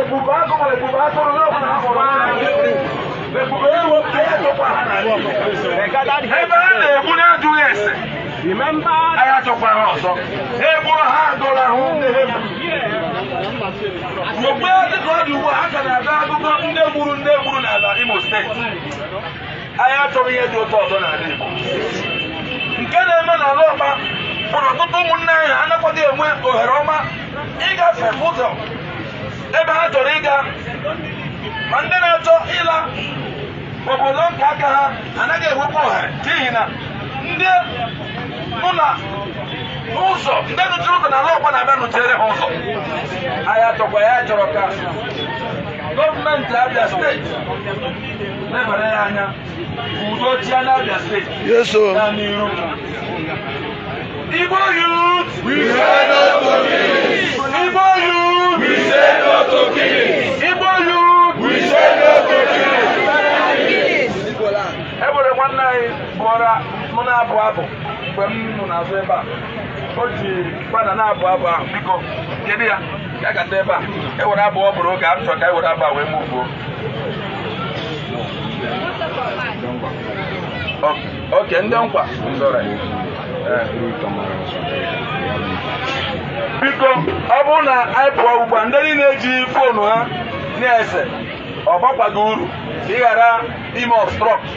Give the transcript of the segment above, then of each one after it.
لبوباكم ولبوباكم لوكم لبوباكم لوكم ebe a na-egbu na-adụghị ese agha tụkwara ọzọ egburu ha agụrụ ahụ mgbe dịka ọ dị ugbu a ha ka na-aga akụkọ nne gburu nne nke na-eme n'ala ọma bụ ọtụtụ ụmụnne anyị anaghịkwa enwe ohere ọma ịgafe ụzọ ebe ha chọrọ ịga ma ndị na-achọ ịla obodo nka aka ha anaghị enwekwa ohere n'ihi na ndị nụ na ụzọ ndị nụchiri ụzọ na ala ọgba na-abịa nụchiere ha ụzọ anyị achọkwa ya chọrọ ka gọọmenti Abia steeti lebara ya anya udo chia na Abia steeti na n'iru Igbo youth! We are not police! Igbo youth! enwere nwanne anyị bụọra mụ na-abụ abụ mgbe m nọ n'azụ ebe a o ji gbada na-abụ abụ ahụ biko kedu ya ya gata ebe a ewere abụ ọ bụrụ oge a chọrọ ka e were abụ a wee mụbuo oke ndị nkwa biko ọ bụrụ na anyị pụọ ugbu a ndị niile eji foonu ha na-ese ọ bakwaghị uru ka ị ghara ime obstrọkt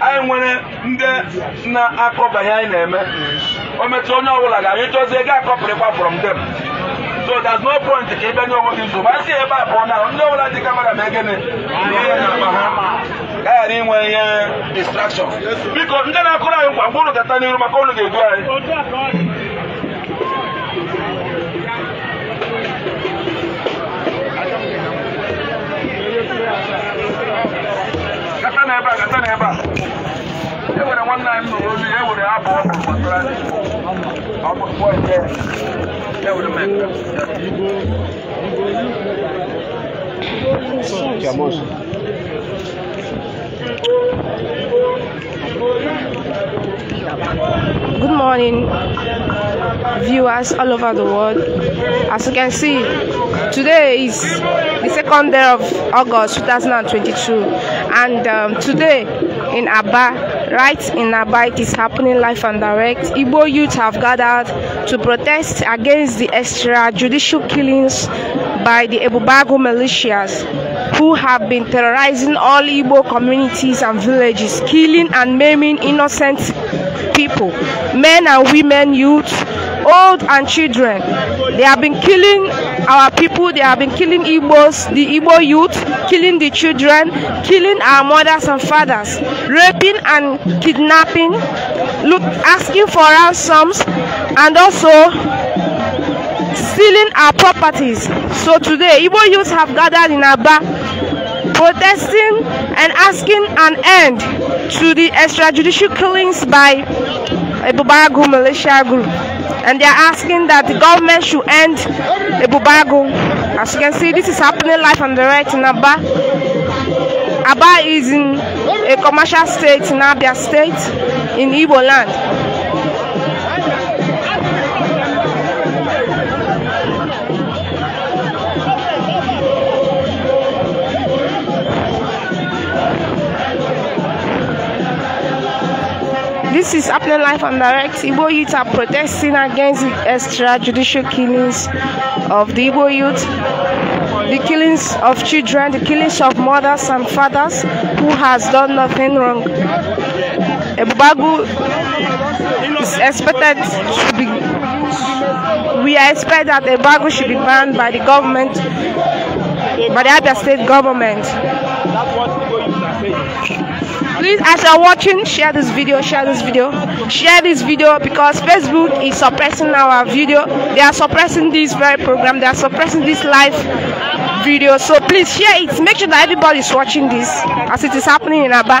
anyị nwere ndị na-akọbanye anyị na-eme o metụ onye ọbụla ga-anyị chọzie ego akọpụrịkwa from them so there's no point ka ị bịa nye onwe gị nsogbu a sị ebe a pụọ na ndị ọbụla dị ka mara ma egene ihe na akpa ha gaghara inwe ihe distraction biko ndị na-akụrụ anyị nkwa mgbe unu gata n'iru maka unu ga-edu anyị Good morning, viewers all over the world. As you can see, today is the second day of August 2022, and um, today in Aba, right in Aba, it is happening live and direct. Igbo youth have gathered to protest against the extrajudicial killings by the Ebubago militias who have been terrorizing all Igbo communities and villages, killing and maiming innocent people, men and women, youth, old and children. They have been killing our people. They have been killing Igbos, the Igbo youth, killing the children, killing our mothers and fathers, raping and kidnapping, look, asking for ransoms, and also stealing our properties. So today, Igbo youth have gathered in Aba protesting and asking an end to the extrajudicial killings by a Bubaragu militia group. and they are asking that the government should end the bubago. As you can see, this is happening live on the right in Aba. Aba is in a commercial state in Abia state in Igbo land. This is happening live and direct. Igbo youth are protesting against the extrajudicial killings of the Igbo youth, the killings of children, the killings of mothers and fathers who has done nothing wrong. Ebubagu is expected to be. We expect that Ebubagu should be banned by the government, by the other state government. please as you're watching share this video share this video share this video because facebook is suppressing our video they are suppressing this very program they are suppressing this live video so please share it make sure that everybody is watching this as it is happening in aba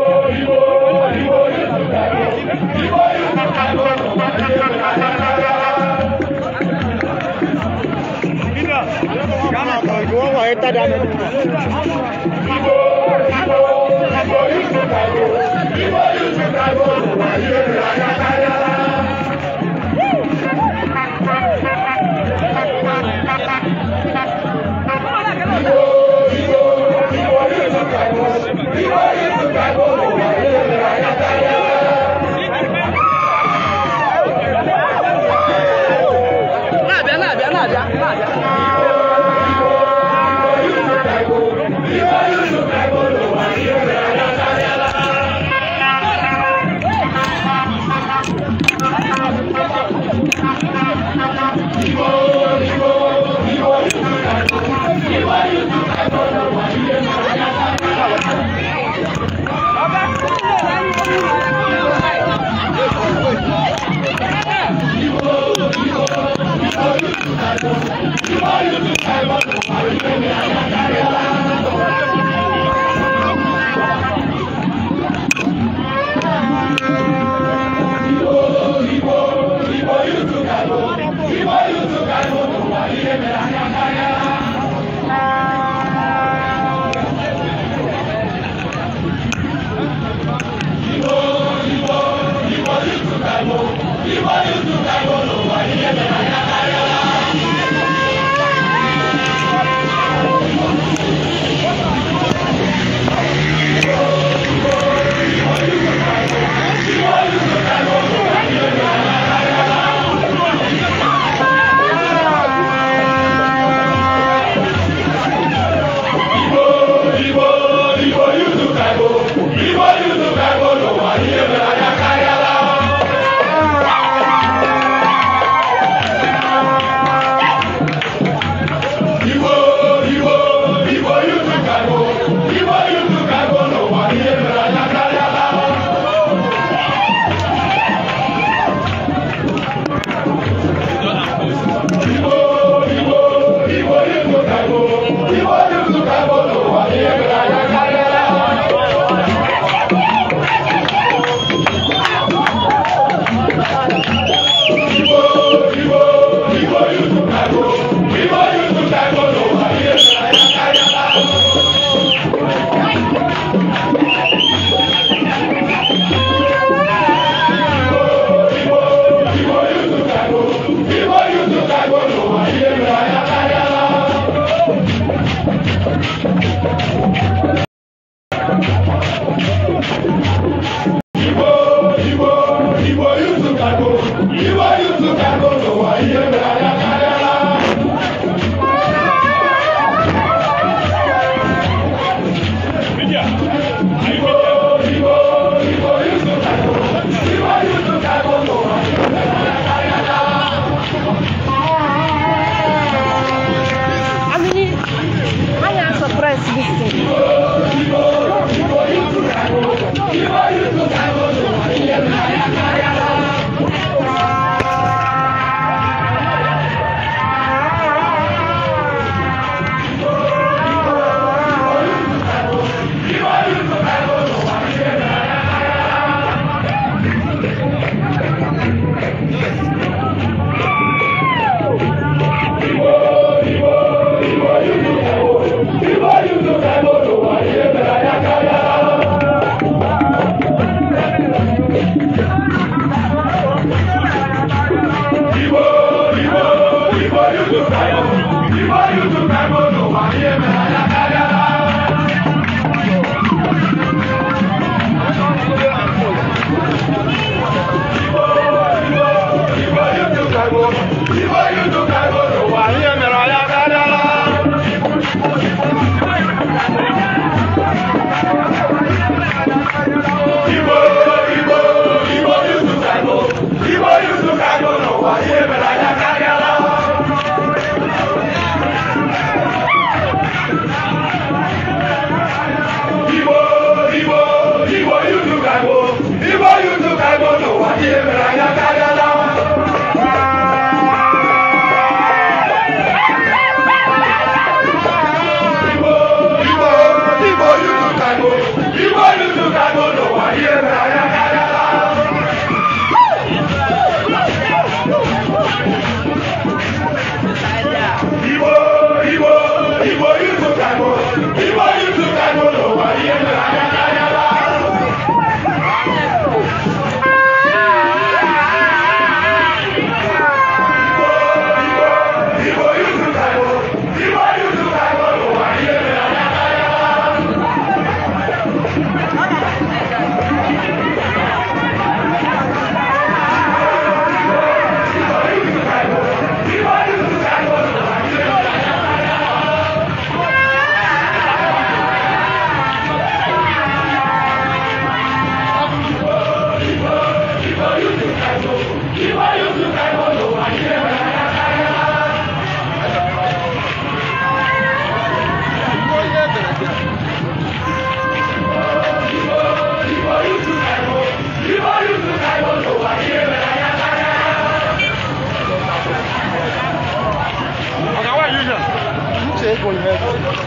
Está dando. Life!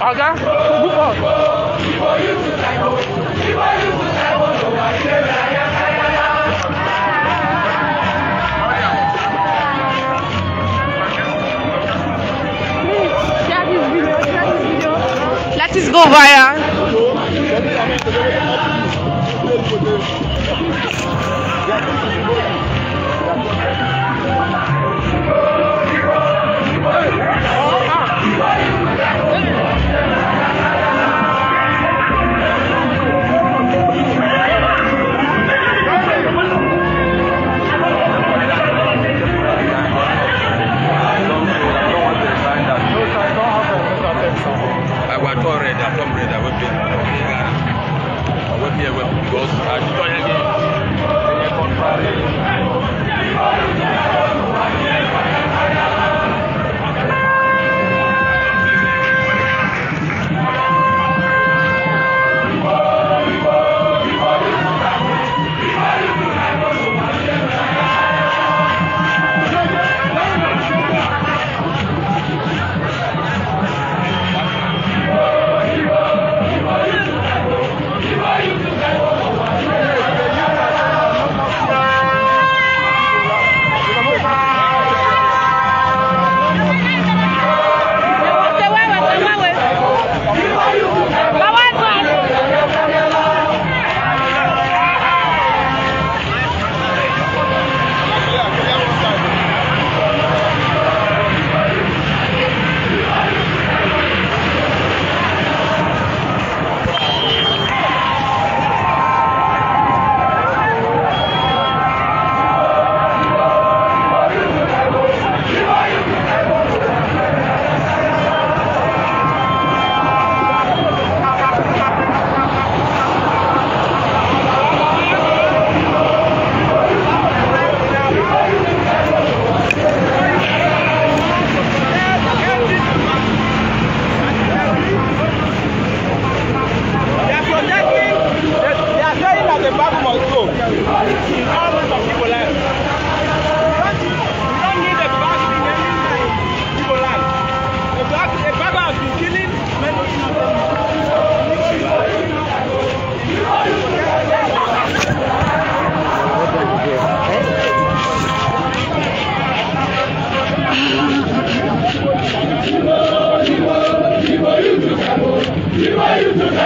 pagar o golpe.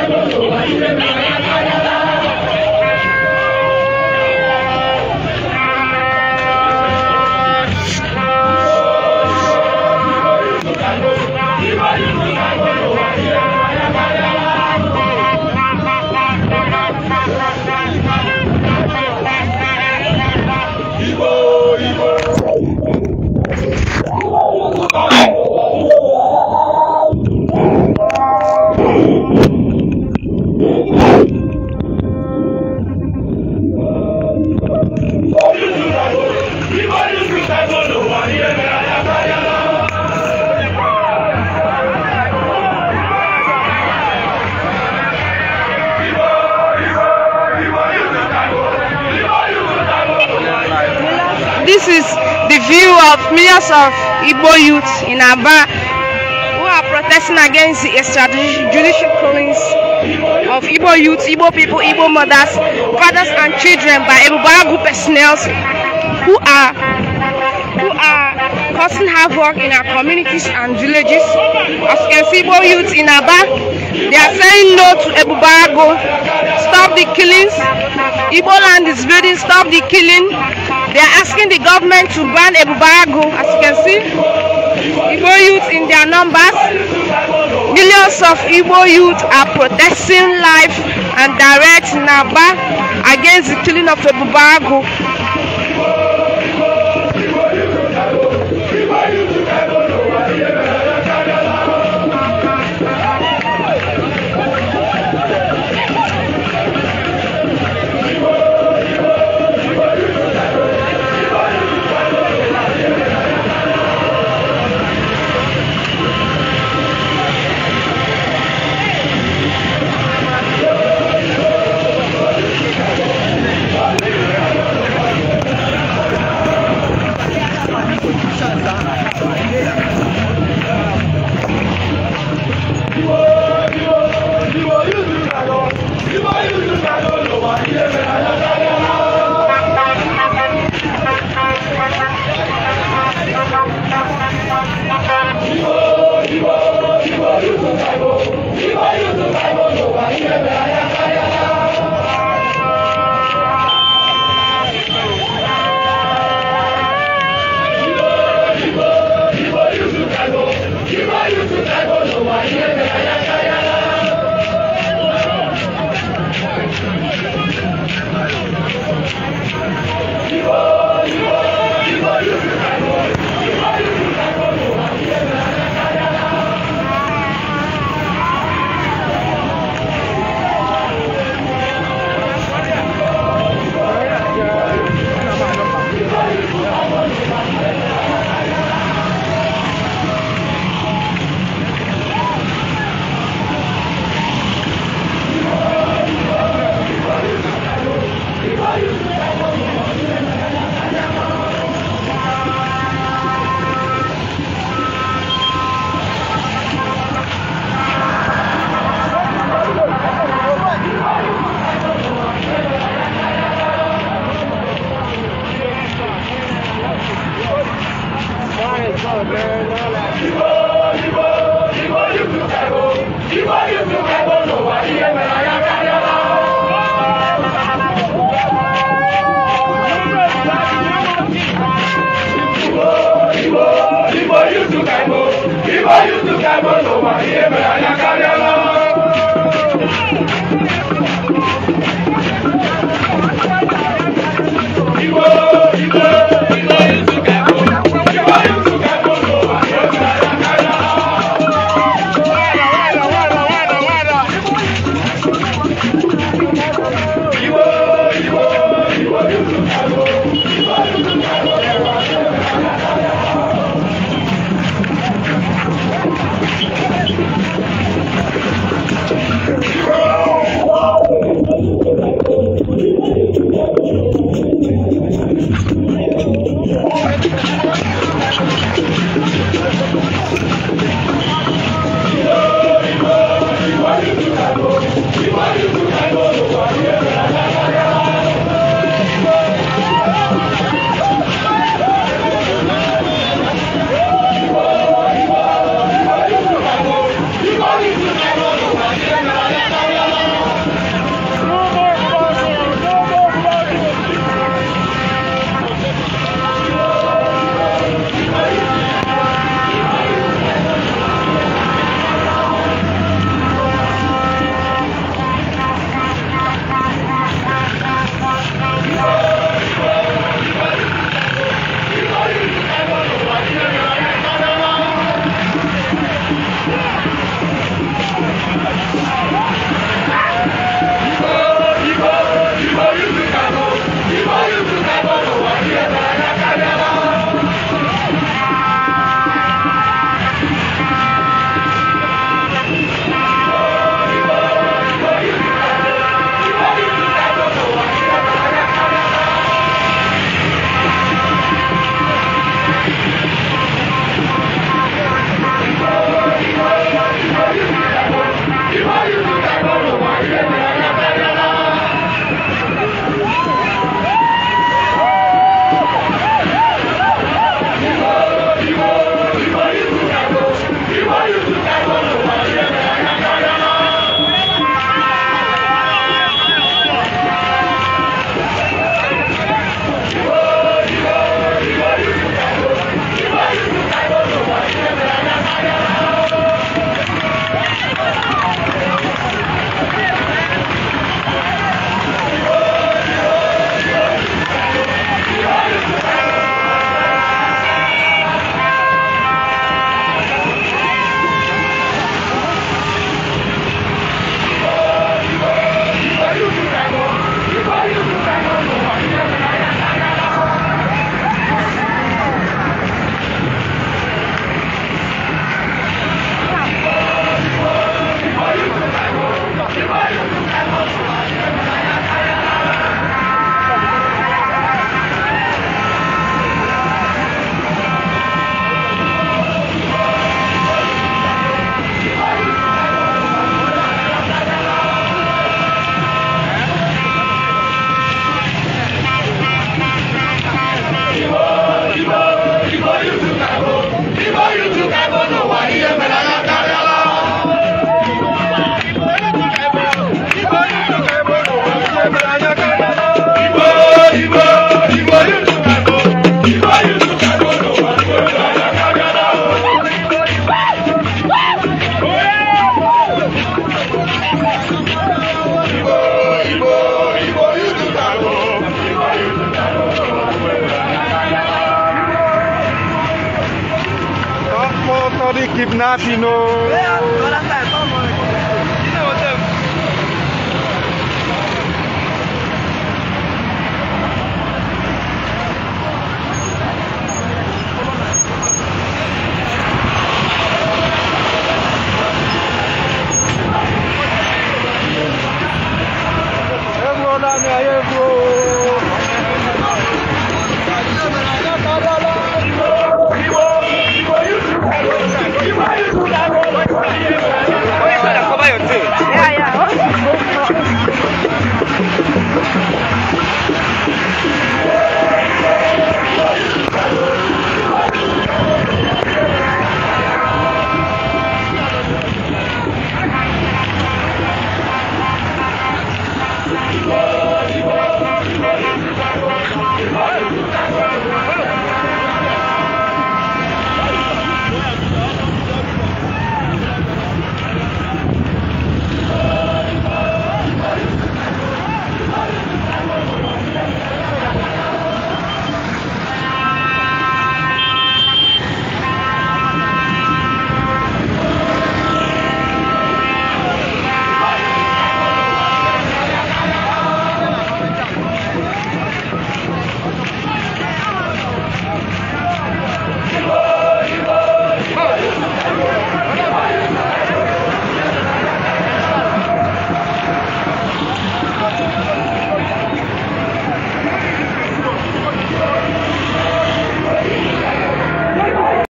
Vai, vai, vai, vai, This is the view of millions of Igbo youths in Aba who are protesting against the extrajudicial killings of Igbo youth, Igbo people, Igbo mothers, fathers and children by Ebubara personnel who are who are causing havoc in our communities and villages. As you can see, Igbo youth in Aba, they are saying no to Ebubara Stop the killings. Igbo land is building, stop the killing. They are asking the government to ban Ebubaragu, as you can see. Igbo youth in their numbers. Millions of Igbo youth are protesting life and direct Naba against the killing of Ebubaragu YouTube ka emo, ibo YouTube ka emo, n'ụwa ihe mere anya karịa